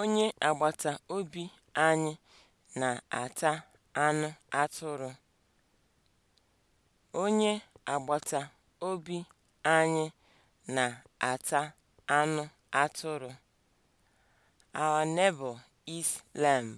Onye agbata obi anyị na-ata anụ atụrụ. Onye agbata obi anyị na-ata anụ atụrụ. Our neighbor eats lamb.